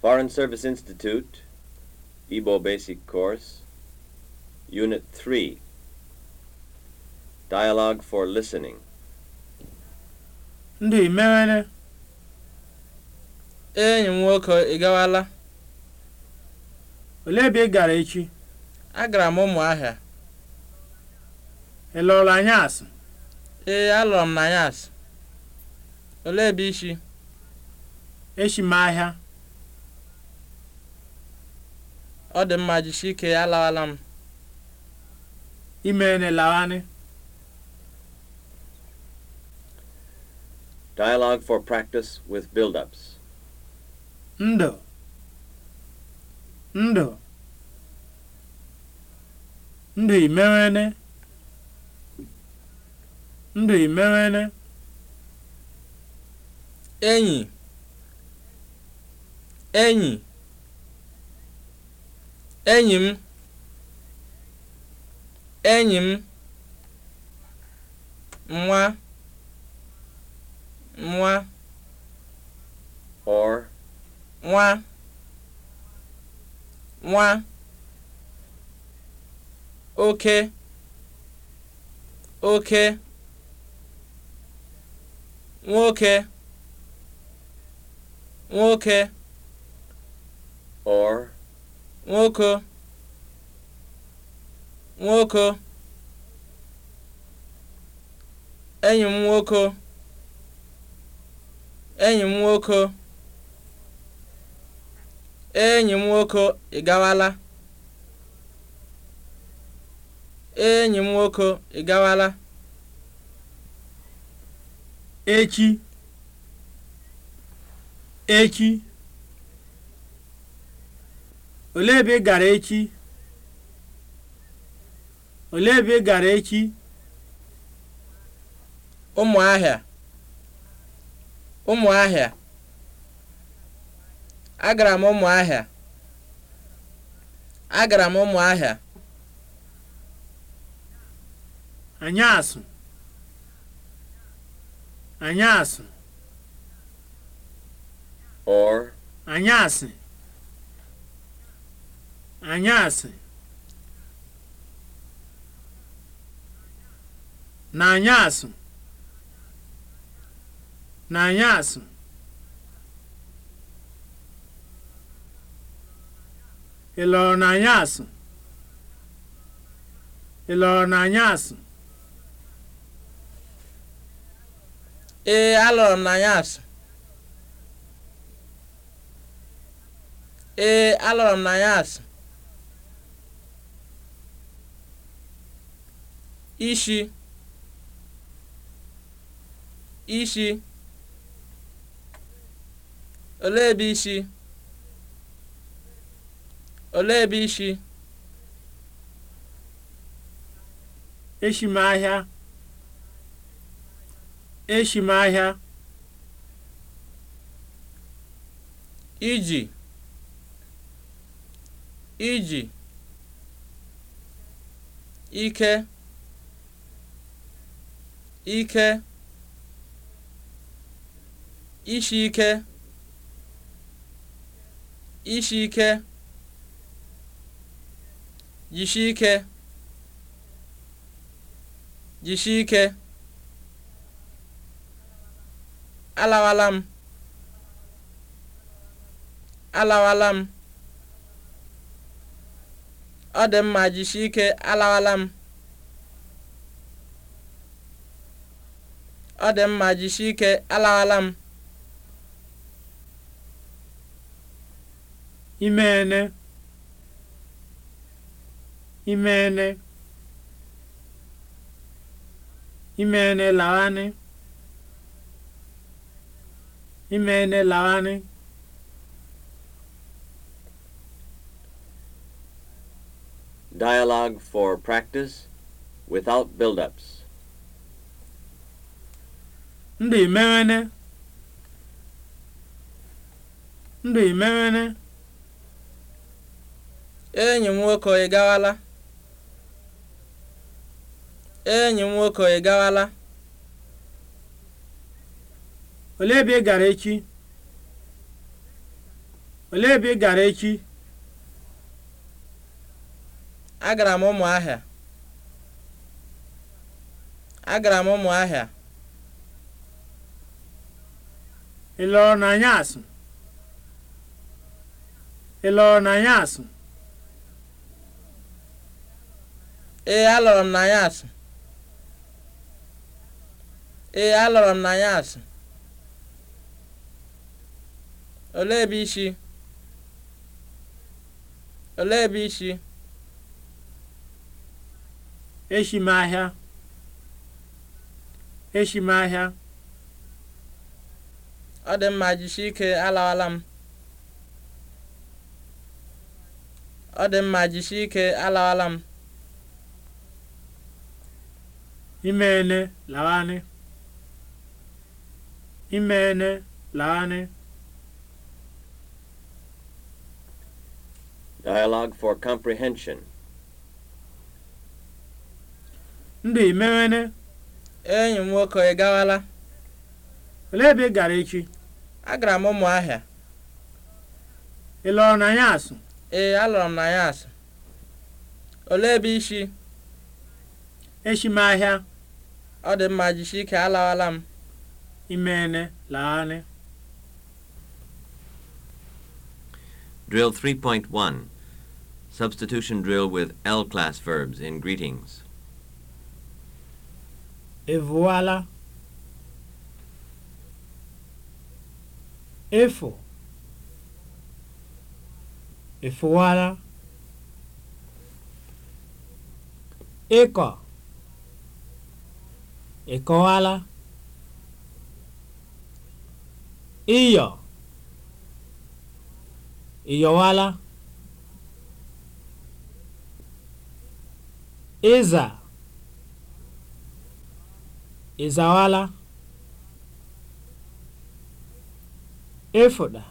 Foreign Service Institute, Igbo Basic Course, Unit 3, Dialogue for Listening. Ndị imere enyi m nwoke ị gawala? Olee ebe ị gara echi? Agara m Ụmụahịa. Ị lụrụ asụ? Ee, alụrụ m na asụ. Olee ebe ishi? Echi m ahịa. ọ dị mma jisike alawala m imeene lawani Dialogue for practice with build-ups. Ndo. Ndo. Ndo imewene. ndụ imewene. Enyi. Enyi. enyi m enyi m nwa nwa or nwa nwa oke oke nwoke nwoke or nwoke nwoke enyi m nwoke enyi m nwoke enyi m nwoke ị gawala enyi m nwoke ị gawala echi echi olee ebe ị gara echi olee ebe ị gara echi ụmụahịa ụmụahịa agara m ụmụahịa agara m ụmụahịa anyasụ anyasụ or anyasị anyasị na anyasị na anyasị ị lọrọ na anyasị ị lọrọ na anyasị ee alọrọ m na anyasị ee alọrọ m na anyasị ishi ishi olee ebe ishi olee ebe ishi eshi m iji iji ike ike ishi ike ishi ike yishi ike jisi ike alawala m alawala m ọ dị mma jisi ike alawala m ọ dị mma jisie ike alaala m imeene imeene imeene laghanị imeene laghanị Dialogue for practice without build-ups. ndị merene ndị merene enyi m nwoke ị gawala enyi m nwoke ị gawala olee ebe ị gara echi olee ebe ị gara echi agara m ụmụahịa agara m ụmụahịa ị lọrọ n'anyasị ị lọrọ n'anyasị ee alọrọ m n'anyasị ee alọrọ m n'anyasị olee ebe isi olee ebe isi eshi e m ahịa eshi m ahịa ọ dị mma jisie ike alawala m ọ dị mma jisie ike alawala m imeene lawanị imeene lawanị Dialogue for comprehension. Ndị Imeene Enyi m nwoke ị gawala. Olee ebe ị gara echi? agara m Ụmụahịa ị na ya asụ ee alụrụ m na ya asụ olee ebe ishi eshi m ahịa ọ dị mma jisie ike alawala m imene laanị Drill 3.1 Substitution drill with L class verbs in greetings. Evoala. efo efụwara ịkọ ịkọwara ịyọ ịyọwara iza ịzawara efuɗa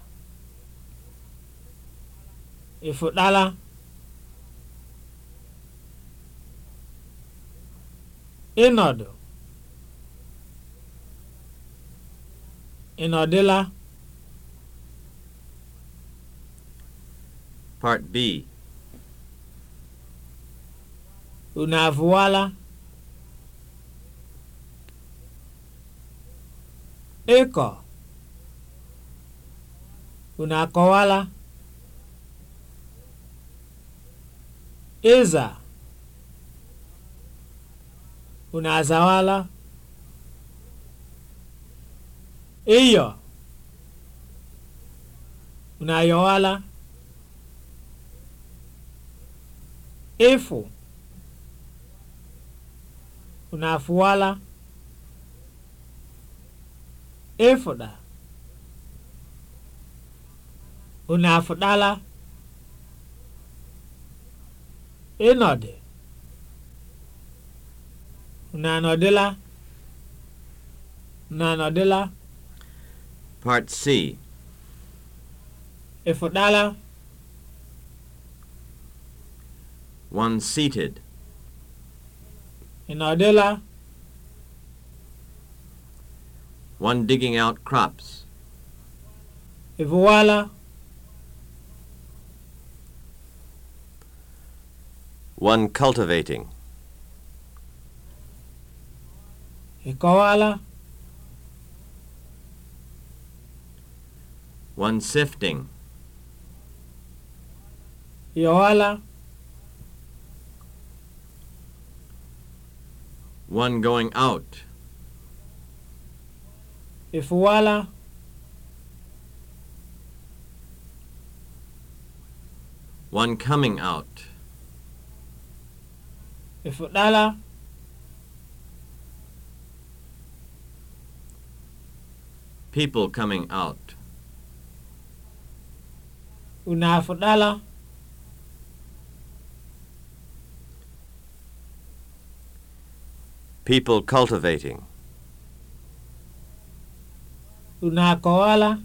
ifutala, ịnọdụ ịnọdịla part b unu avụwala ịkọ unu akọwala ịza unu azawala ịyọ unu ayọwala ịfụ unu afụwala ịfụda unu afụdala ịnọdụ unu anọdụla unu anọdụla part c ịfụdala one seated ịnọdụla one digging out crops ịfụwala One cultivating. Ịkọwaala. E one sifting. Ịyọwaala. E one going out. Ịfụwaala. E one coming out. efuɗala people coming out Una afuɗala people cultivating Una kowala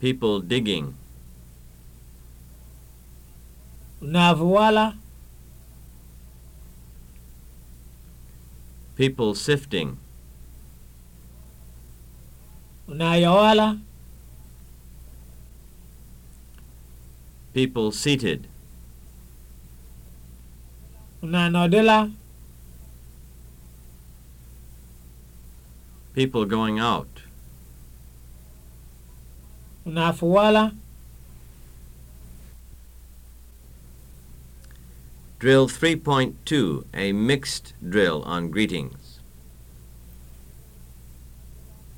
people digging Navwala. People sifting. Unayawala. People seated. Unanodela. People going out. Unafuwala. Drill 3.2, a mixed drill on greetings.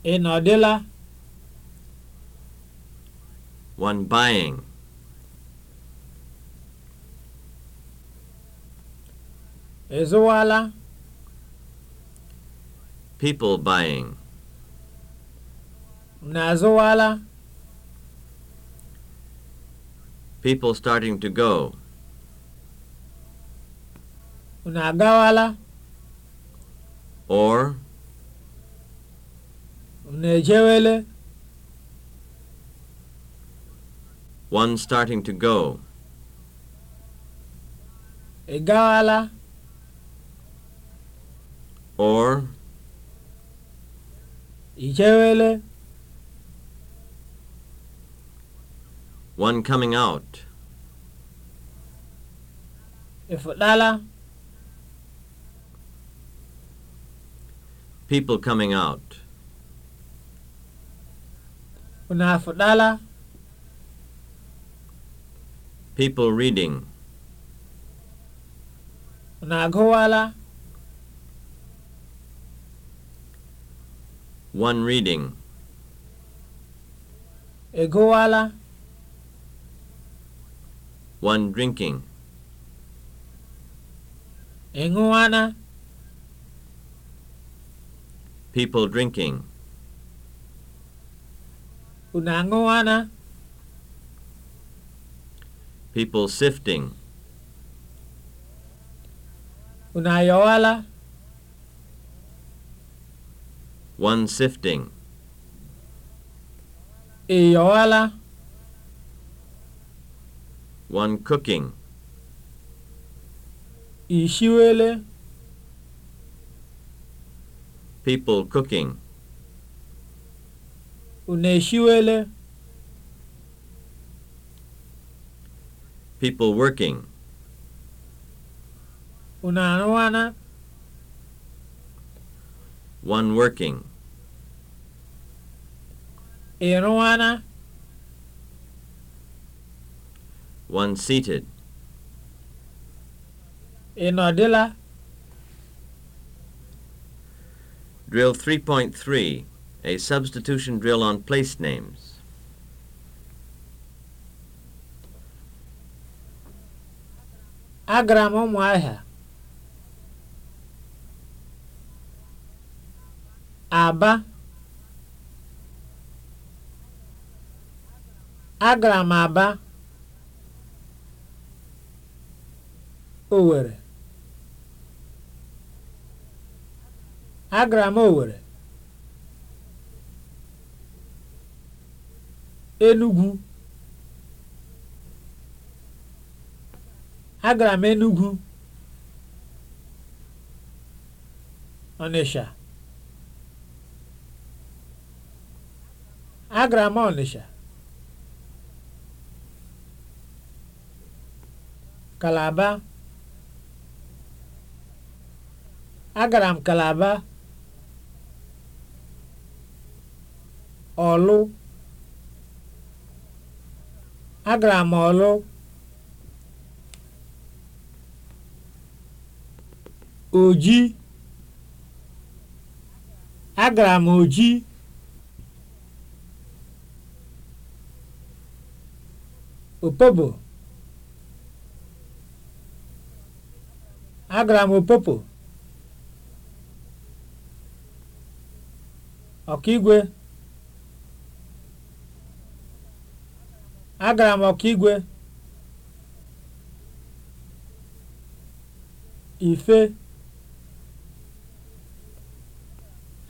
Ị nọdịla? One buying. Ị People buying. Na People starting to go. unu agawala or unu ejewele one starting to go ị gawala or ị one coming out ị people coming out. afudala. People reading. Unagowala. One reading. Egowala. One drinking. Enguana. people drinking. Unangoana. People sifting. Unayoala. One sifting. Iyoala. One cooking. Ishiwele. people cooking. Unu eshiwele? People working. Unu arụwana? One working. Ị One seated. Ị nọdịla? Drill 3.3, a substitution drill on place names. Agara m Ụmụahịa. Aba. Agara m Aba. owere. agara m Enugu, agara m Enugu, Ọnịsha, agara m Ọnịsha, Kalaba, agara m Kalaba. ọlụ agara m ọlụ oji agara m oji opobo agara m opopo ọkaigwe agara m igwe ife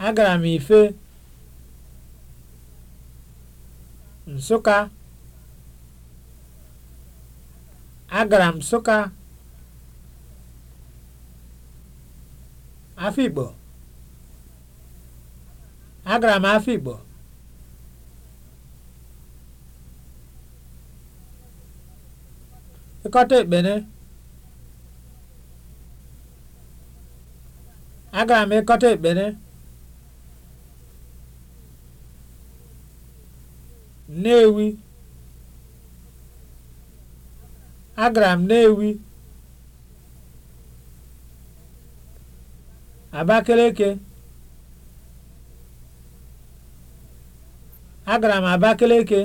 agara m ife nsụka agara m nsụka afikpo agara m afikpo ịkọta ekpere agara m ịkọta ekpere ewi agara m na-ewi abakeleke agara m abakeleke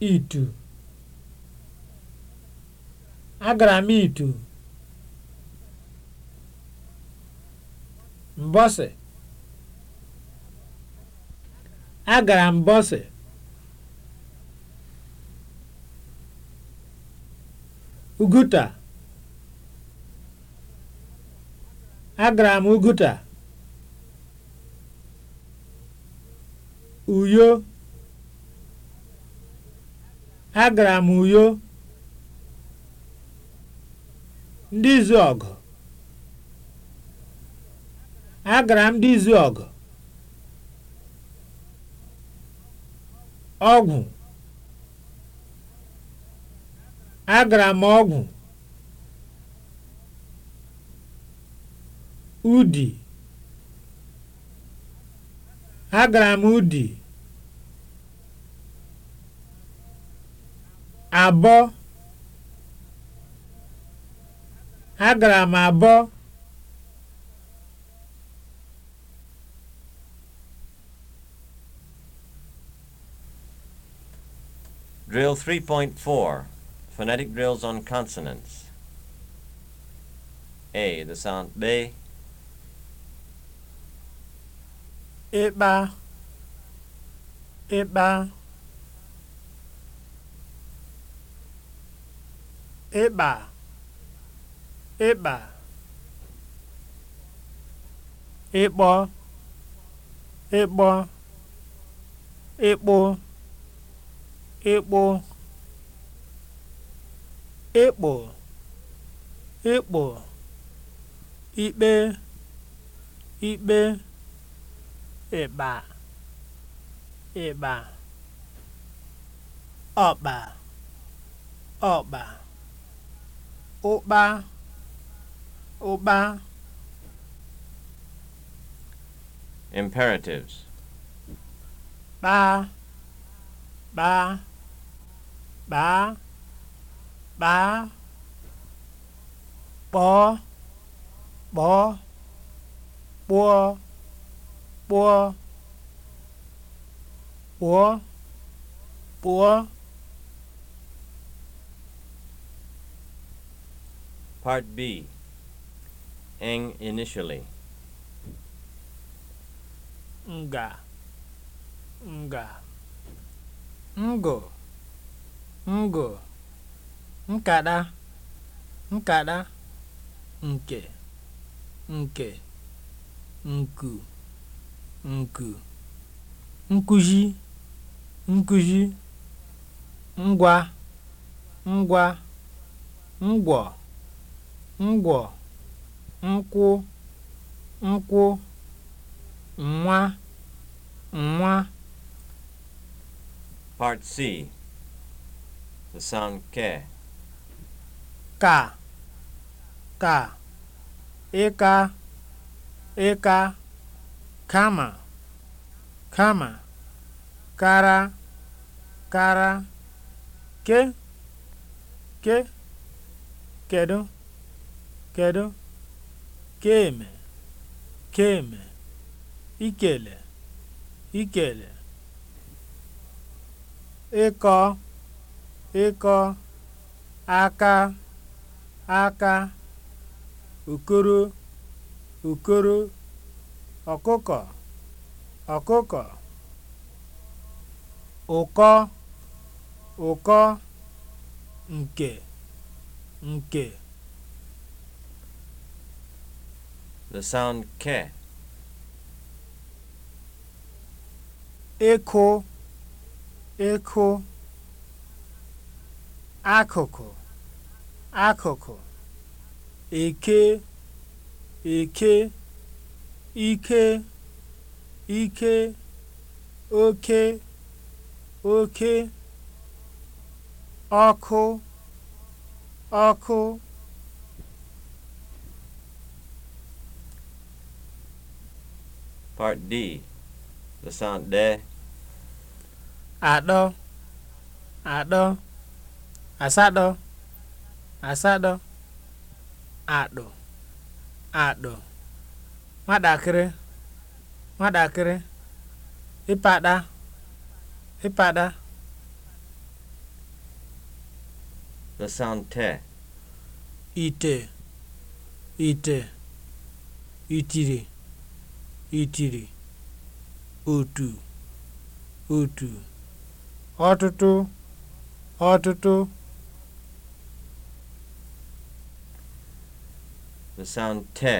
itu agara m itu mbọsị agara mbọsị uguta agara m uguta uyo agara m uyo ndị izu ọgụ agara m ndị izu ọgụ ọgwụ agara m ọgwụ udi agara m udi abọ agara m abọ Drill 3.4 Phonetic drills on consonants. A. The sound B. Ịkpa. Ịkpa. ịkpa ịkpa ịkpọ ịkpọ ịkpụ ịkpụ ịkpụ ịkpụ ikpe ikpe ịkpa ịkpa ọkpa ọkpa ụkpa ụkpa imperatives kpaa kpaa kpaa kpaa kpọọ kpọọ kpụọ kpụọ kpụọ kpụọ Part B Eng initially. Nga. Nga. Ngo. Ngo. Nkada. Nkada. Nke. Nke. Nku. Nku. Nkuzi. Nkuzi. Ngwa. Ngwa. Ngwọ. ngwọ̀ nkwụ nkwụ nwa nwa Part C. The sound ke. ka ka ịka ịka kama kama kara kara ke ke kedu kedu keme keme ikele ikele ịkọ ịkọ aka aka okoro okoro ọkụkọ ọkụkọ ụkọ ụkọ nke nke the sound k. ịkụ ịkụ akụkụ akụkụ eke eke ike ike oke oke ọkụ ọkụ Part D. The sound de. Atọ. Atọ. Asatọ. Asatọ. Atọ. Atọ. Nwatakịrị. Nwatakịrị. ipada ipada The sound te. Ite. Ite. Itiri. itiri otu otu ọtụtụ ọtụtụ santé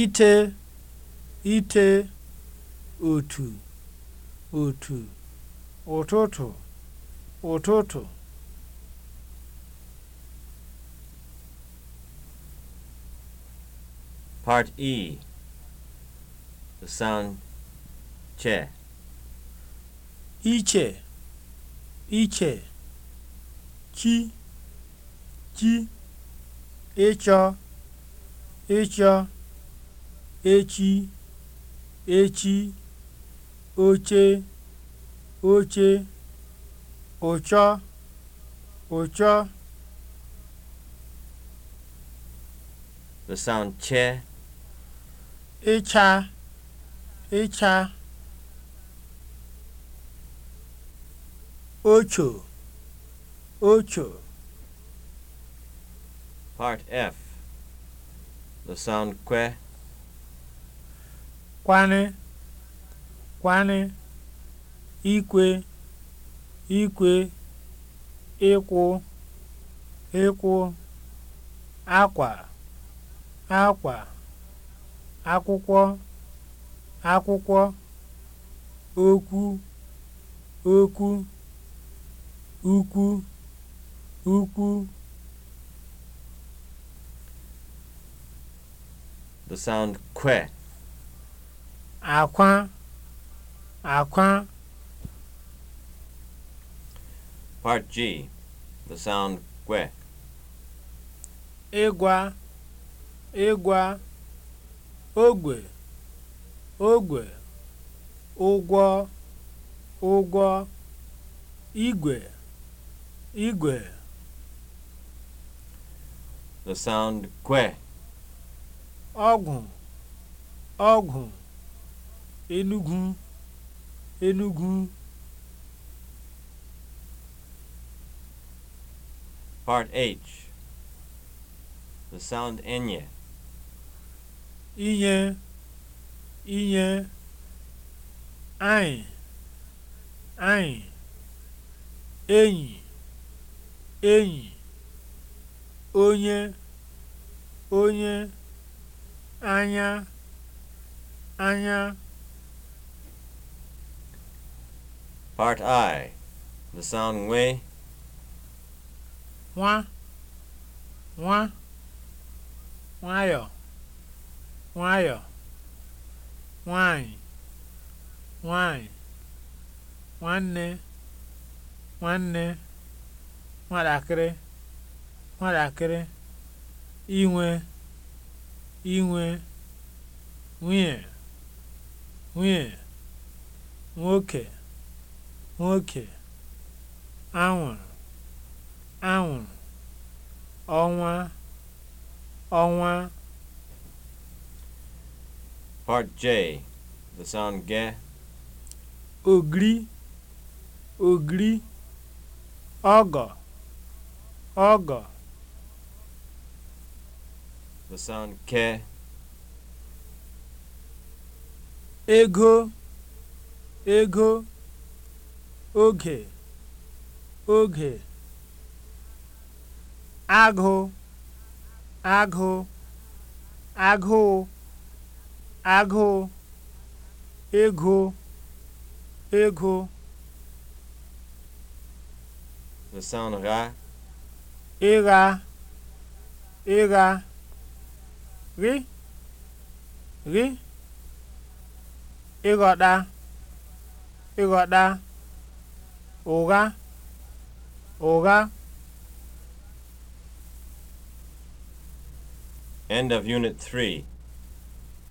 ite ite otu otu ụtụtụ ụtụtụ Part E. The sound che. Iche. Iche. Chi. Chi. Echa, Echa, Echi. Echi. Oche. Oche. Ocha, Ocha. The sound che. ịcha ịcha ocho ocho Part F The sound kwe kwane kwane ikwe ikwe ịkwụ ịkwụ akwa akwa akwụkwọ akwụkwọ okwu okwu ukwu ukwu The sound kwe. Akwa, akwa. Part G. The sound kwe. Ịgwa, ịgwa. ogwe ogwe ụgwọ ụgwọ igwe igwe the sound kwe ọgwụ ọgwụ enugwu enugwu part h the sound enye inye inye anyị anyị enyi enyi onye onye anya anya Part I, the sound nwee. Nwa, nwa, nwayọọ. nwayọ nwanyị nwanyị nwanne nwanne nwatakịrị nwatakịrị inwe inwe nwunye nwunye nwoke nwoke anwụrụ anwụrụ ọnwa ọnwa Part J, the sound ge. Ogri, ogri, ọgọ, ọgọ, The sound ke. Ego, ego, oge, oge. Agụ, agụ, agụụ. agụụ ego ego the sound ra ịgha ịgha rị rị ịghọta ịghọta ụgha ụgha End of Unit 3